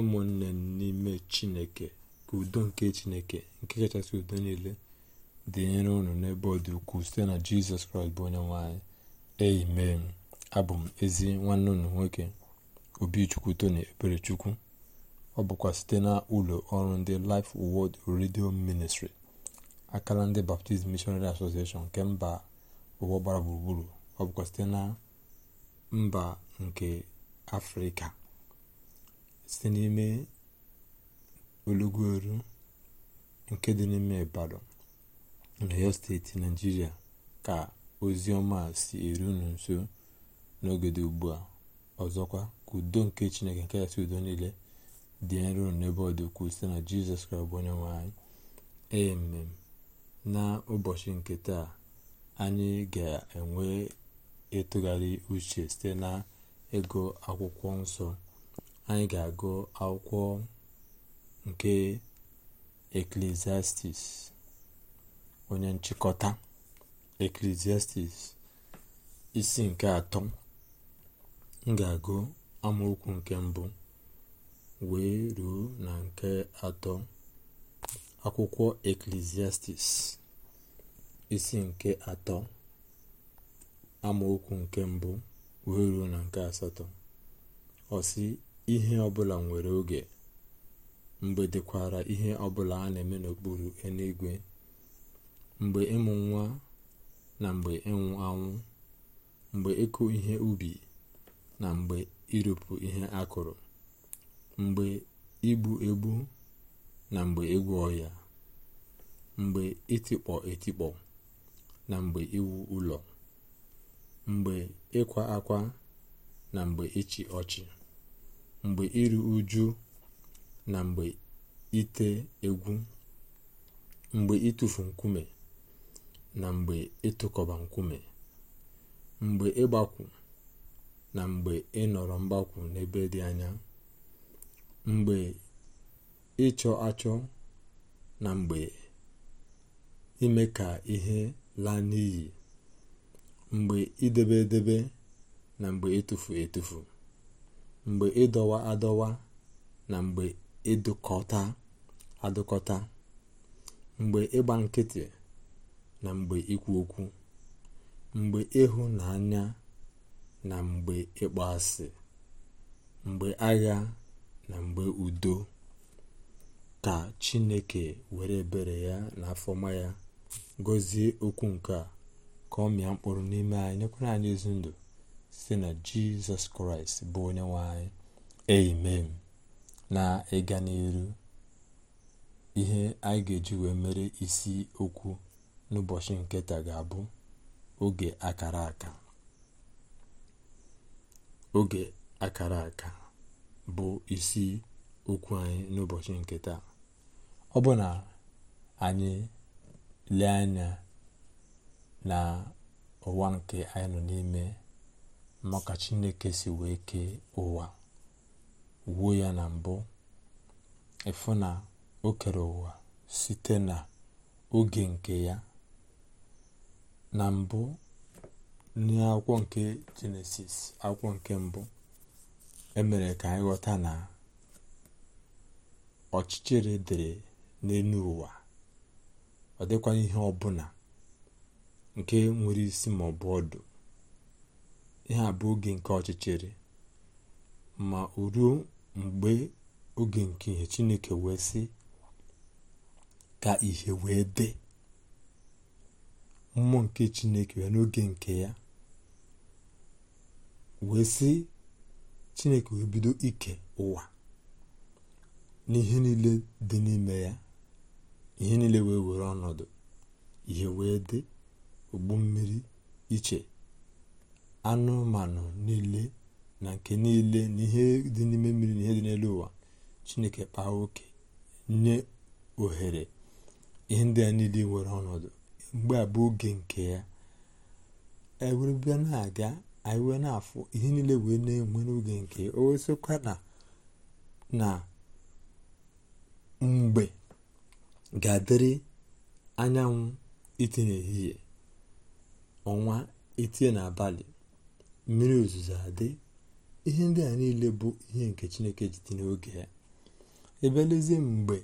ụmụnne n'ime chineke ka udo nke chineke nke kachasị udo niile dị dịnyere ụnụ n'ebe ọ dị ukwuu site na jizọs kraịst bụ onye nwanyị amen abụ m ezi nwanne ụnụ nwoke obichukwu tony eberechukwu ọ bụkwa site na ụlọ ọrụ ndị Life world Radio Ministry akala ndị baptism Missionary Association nke mba ụwa gbara gburugburu ọ bụkwa site na mba nke afrịka site n'ime olugu-oru nke dị n'ime Ibadan na rio steeti nigeria ka ozi ọma si eru unu nso n'oge ugbu a ọzọkwa ka udo nke Chineke nke kachasị udo niile dị nro n'ebe ọ dị site na Jizọs Kraịst bụ onye nwe emem na ụbọchị nke taa anyị ga-enwe ịtụgharị uche site na ego akwụkwọ nsọ anyị ga-agụ akwụkwọ nke eklesiastis onye nchịkọta eklesiastis isi nke atọ m ga-agụ amaokwu nke mbụ wee ruo na nke atọ akwụkwọ eklesiastis isi nke atọ amaokwu nke mbụ wee ruo na nke asatọ ọsị ihe ọbụla nwere oge mgbe dịkwara ihe ọbụla a na-eme n'okpuru eluigwe mgbe ịmụ nwa na mgbe ịnwụ anwụ mgbe ịkụ ihe ubi na mgbe ịrụpụ ihe akụrụ mgbe igbu egbu na mgbe egwu ọhịa mgbe itikpọ etikpọ na mgbe iwu ụlọ mgbe ịkwa akwa na mgbe ịchị ọchị mgbe iru uju na mgbe ite egwu mgbe ịtụfu nkume na mgbe ịtụkọba nkume mgbe ịgbakwu na mgbe ịnọrọ mgbakwu n'ebe dị anya mgbe ịchọ achọ na mgbe ime ka ihe laa n'iyi mgbe idebe edebe na mgbe etufu etufu mgbe ịdọwa adọwa na mgbe ịdụkọta adụkọta mgbe ịgba nkịtị na mgbe ikwu okwu mgbe ịhụnanya na mgbe asị mgbe agha na mgbe udo ka chineke were bere ya na afọma ya gọzie okwu nke a ka ọ mịa mkpụrụ n'ime anyị nyekwara anyị ezi ndụ site na jizọs kraịst bụ onye nwe anyị amen na ịga n'elu ihe anyị ga-eji wee mere isi okwu n'ụbọchị nke taa ga-abụ oge akara aka oge akara aka bụ isi okwu anyị n'ụbọchị nke taa ọ bụ na anyị lee anya na ụwa nke anyị nọ n'ime maka chineke si wee kee ụwa wuo ya na mbụ ịfụ na o kere ụwa site na oge nke ya na mbụ n'akwụkwọ nke jenesis akwụkwọ nke mbụ emere ka anyị ghọta na ọchịchịrị dịrị n'elu ụwa ọ dịkwanye ihe ọbụla nke nwere isi maọbụ ọdụ ihe a bụ oge nke ọchịchịrị ma o ruo mgbe oge nke ihe chineke wee sị ka ihe wee dị mmụọ nke chineke wee n'oge nke ya wee sị chineke wee bido ike ụwa n'ihe niile dị n'ime ya ihe niile wee were ọnọdụ ihe wee dị ụgbọ mmiri iche anụmanụ niile na nke niile na ihe dị n'ime mmiri na ihe dị n'elu ụwa chineke kpaa oke nye ohere ihe ndị a niile nwere ọnọdụ mgbe a oge nke ya ewere bịa na-aga anyị wee na-afụ ihe niile wee na-enwe n'oge nke o na mgbe ga-adịrị anyanwụ itinye ehihie ọnwa itie n'abalị mmiri ozuzo adị ihe ndị a niile bụ ihe nke chineke ji n'oge ya ebe lezie mgbe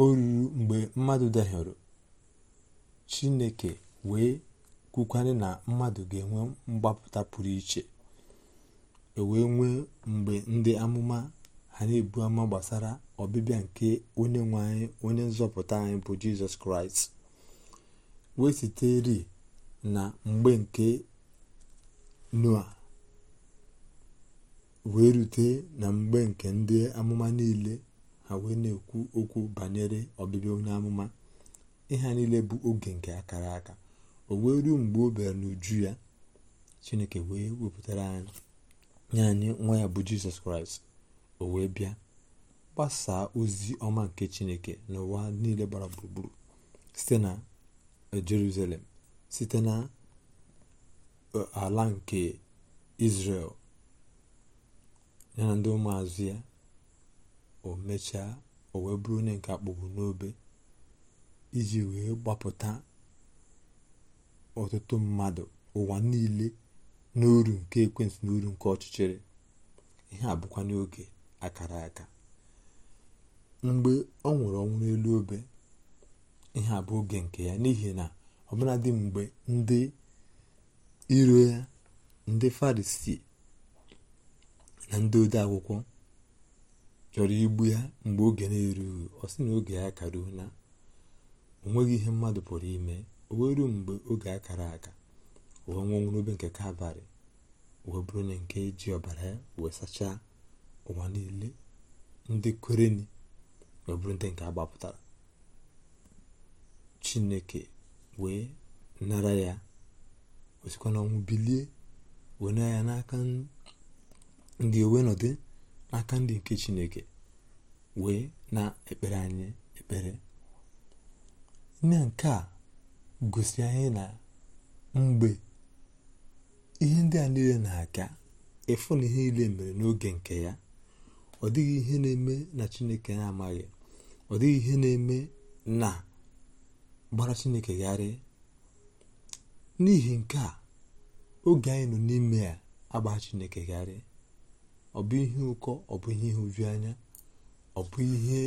o ruru mgbe mmadụ dahiọrọ chineke wee kwukwanye na mmadụ ga-enwe mgbapụta pụrụ iche ewee nwee mgbe ndị amụma ha na-ebu ama gbasara ọbịbịa nke onye nwe anyị onye nzọpụta anyị bụ jizọs kraịst wee sitere na mgbe nke noa wee rute na mgbe nke ndị amụma niile ha wee na-ekwu okwu banyere ọbịbịa onye amụma ịha niile bụ oge nke akara aka o wee ruo mgbe o bịara n'uju ya chineke wee wepụtara anyị nye anyị nwa ya bụ jizọs kraịst o wee bịa gbasaa ozi ọma nke chineke n'ụwa niile gbara gburugburu site na jerusalem site na ala nke Izrel ya na ndị ụmụazụ ya o mechaa o wee bụrụ onye nke akpọgbu n'obe iji wee gbapụta ọtụtụ mmadụ ụwa niile n'uru nke ekwentị n'uru nke ọchịchịrị ihe a bụkwa n'oge akara aka mgbe ọ nwụrụ ọnwụ n'elu obe ihe a oge nke ya n'ihi na ọbụladị mgbe ndị iro ya ndị farisii na ndị ode akwụkwọ chọrọ igbu ya mgbe oge na-erughị ọ sị na oge ya karuo na onweghị ihe mmadụ pụrụ ime o wee mgbe oge a kara aka wee nwụọ n'obe nke kalvarị wee bụrụ onye nke ji ọbara ya wee sachaa ụwa niile ndị kwereni wee bụrụ ndị nke agbapụtara chineke wee nara ya o sikwa bilie wenye ya n'aka ndị owe n'ọdị n'aka ndị nke chineke wee na-ekpere anyị ekpere nne nke a gosi anyị na mgbe ihe ndị a niile na-aga ịfụ na ihe niile mere n'oge nke ya ọ dịghị ihe na-eme na chineke na-amaghị ọ dịghị ihe na-eme na gbara chineke gharị n'ihi nke a oge anyị nọ n'ime ya agba chineke gharịa ọ bụ ihe ụkọ ọ bụ ihe oju anya ọ bụ ihe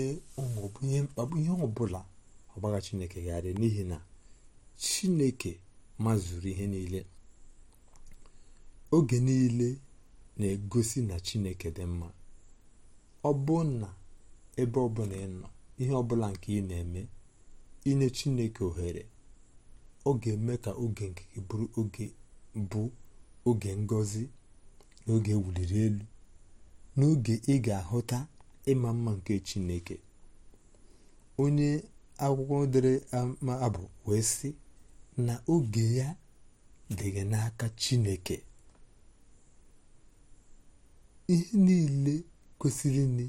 ihe chineke gharị n'ihi na chineke mazuru ihe niile oge niile na-egosi na chineke dị mma ọ bụ na ebe ọbụla ị nọ ihe ọbụla nke ị na-eme inye chineke ohere ọ ga-eme ka oge nke gị bụrụ oge bụ oge ngozi na oge ewuliri elu n'oge ị ga-ahụta ịma mma nke chineke onye akwụkwọ dere ama abụ wee sị na oge ya dịghị n'aka chineke ihe niile kwesịrị ni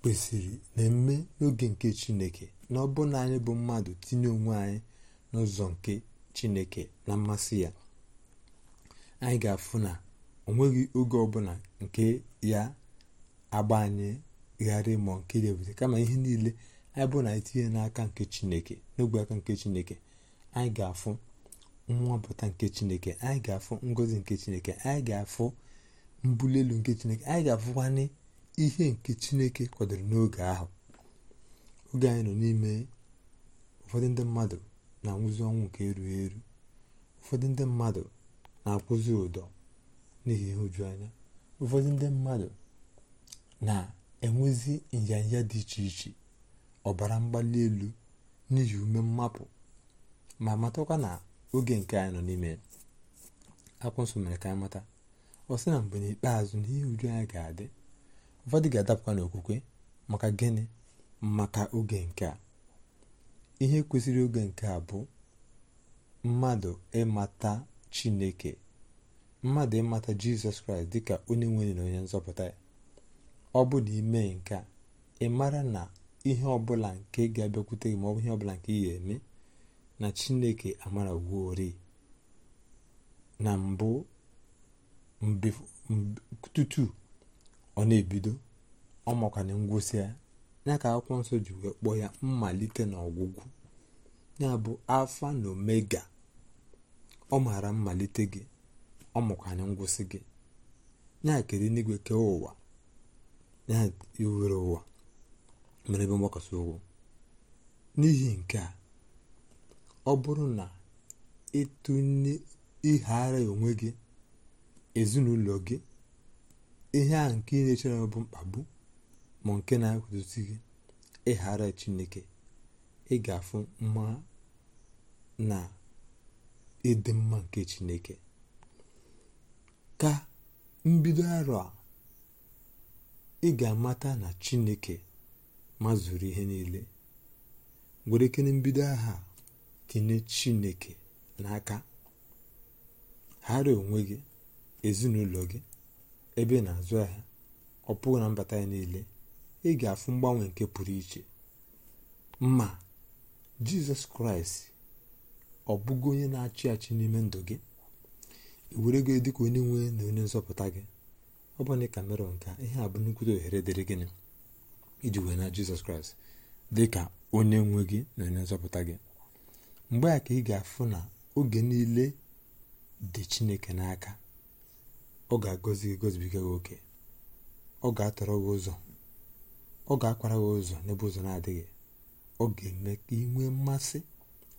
kwesịrị na-eme n'oge nke chineke na ọ bụ na anyị bụ mmadụ tinye onwe anyị n'ụzọ nke chineke na mmasị ya anyị ga-afụ na o nweghị oge ọbụla nke ya agba anyị gharị ma nke debute kama ihe niile anyị bụ na etinye n'aka nke chineke n'ogbe aka nke chineke anyị ga-afụ nwapụta nke chineke anyị ga-afụ ngozi nke chineke anyị ga-afụ mbuli nke chineke anyị ga-afụkwanye ihe nke chineke kwadoro n'oge ahụ oge anyị nọ n'ime ụfọdụ ndị mmadụ na nwụzi ọnwụ nke erughị eru ụfọdụ ndị mmadụ na-akwụzi ụdọ n'ihi anya ụfọdụ ndị mmadụ na-enwezi nyanya dị iche iche ọbara mgbali elu n'ihi ume mmapụ ma matakwa na oge nke anyị nọ n'ime akwụ nsọ mere ka anyị mata ọ sị na mgbe n'ikpeazụ ihe uju anya ga-adị ụfọdụ ga-adapụkwa n'okwukwe maka gịnị maka oge nke a ihe kwesịrị oge nke a bụ mmadụ ịmata chineke mmadụ ịmata jizọs kraịst dịka onye nwere na onye nzọpụta ya ọ bụ na ime nke a ị mara na ihe ọbụla nke ga-abịakwute gị ma ọ bụ ihe ọbụla nke ị ga-eme na chineke amara wuori na mbụ tutu ọ na-ebido ọ makwana ngwụsị ya ya ka akwụkwọ nsọ ji wee kpọọ ya mmalite na ọgwụgwụ ya bụ alfanomega na omega ọ maara mmalite gị ọ makwanye ngwụsị gị ya kere n'igwe kee ụwa ya iwere ụwa mere ebe mgbakọta ụgwụ n'ihi nke a ọ bụrụ na ịtụnye ịghara onwe gị ezinụlọ gị ihe ahụ nke ị na-echere bụ mkpagbu ma nke na gị ịghara chineke ị ga-afụ mma na ịdị mma nke chineke ka mbido arọ a ị ga-amata na chineke ma mazuru ihe niile were kene mbido aha tinye chineke n'aka ghara onwe gị ezinụlọ gị ebe na-azụ ahịa ọ pụghị na mbata ya niile ị ga-afụ mgbanwe nke pụrụ iche ma jizọs kraịst ọ bụgo onye na-achị achị n'ime ndụ gị were ego dịka onye nwe na onye nzọpụta gị ọ bụ ka mere nka ihe a bụ nnukwute ohere dịrị gịnị iji wee na jizọs kraịst dị ka onye nwe gị na onye nzọpụta gị mgbe a ka ị ga-afụ na oge niile dị chineke n'aka ọ ga-agọzi gị gozibiga gị oke ọ ga-atọrọ gị ụzọ ọ ga-akwara gị ụzọ n'ebe ụzọ na-adịghị ọ ga-eme ka ị nwee mmasị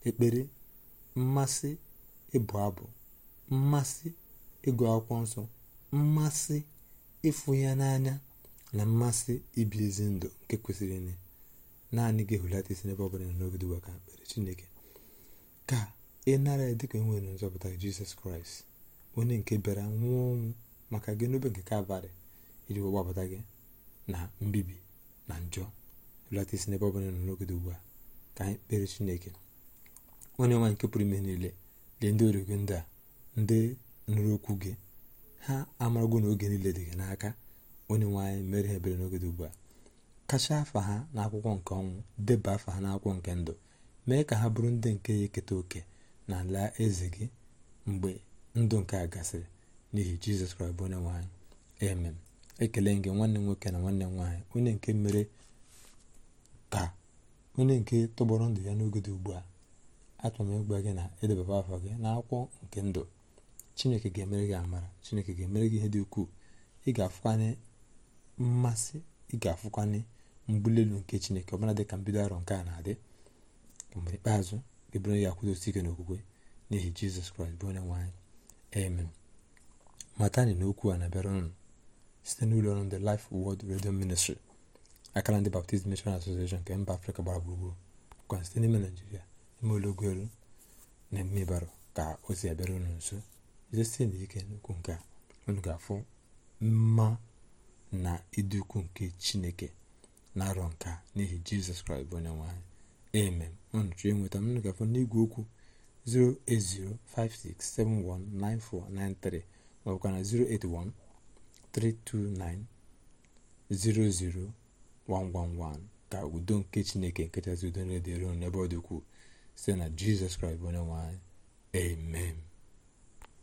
ekpere mmasị ịbụ abụ mmasị ịgụ akwụkwọ nsọ mmasị ịfụ ya n'anya na mmasị ibi ezi ndụ nke kwesịrị nne naanị gị hụlata isi n'ebe ọ bụla n'ogide ụwa ka mkpere chineke ka ị nara ya dịka enwere nzọpụta jizọs kraịst onye nke bịara nwụọ ọnwụ maka gị n'obe nke kalvarị iji gbapụta gị na mbibi na njọ belata isi n'ebe ọbụla nọ n'oge ugbu a ka anyị kpere chineke onye nwa nke pụrụ ime niile lee ndị origo ndị a ndị nụrụ okwu gị ha amarago n'oge niile dị gị n'aka onye nwaanyị mere ha ebere n'oge dị ugbu a kacha afa ha n'akwụkwọ nke ọnwụ deba afa ha n'akwụkwọ nke ndụ mee ka ha bụrụ ndị nke ya eketa oke na ala eze gị mgbe ndụ nke a gasịrị n'ihi jizọs kraịst bụ onye nwe amen ekele gị nwanne m nwoke na nwanne m nwaanyị onye nke mere ka onye nke tọgbọrọ ndụ ya n'oge dị ugbu a achọrọ m ịgwa gị na edebaba afọ gị na akwụkwọ nke ndụ chineke ga-emere gị amara chineke ga-emere gị ihe dị ukwuu ị ga-afụkwanye mmasị ị ga-afụkwanye mbuli elu nke chineke ọbụla dị ka mbido arọ nke a na-adị mgbe ikpeazụ ga ebere ya akwụdosi ike n'okwukwe n'ihi jizọs kraịst bụ onye nwaanyị anyị matani na okwu a na-abịara ụnụ site n'ụlọ ọrụ ndị Life world Radio Ministry akara ndị Baptist Mission Association nke mba Afrịka gbara gburugburu kwa site n'ime Naijiria ime ụlọugwelu na mmebara ka ozi abịara unu nso jidesi n'ike ike n'ukwu nke unu afụ mma na ịdị nke Chineke na-arọ nka n'ihi Jizọs Kraịst bụ onye nwe anyị amen unu chọọ ịnweta m unu ga n'igwe okwu 08056719493 ka na 081 329-00111 ka udo nke chineke nkechasị udo na-edere n'ebe ọ dịkwuo site na jizọs kraịst bụ onye nwanyị amen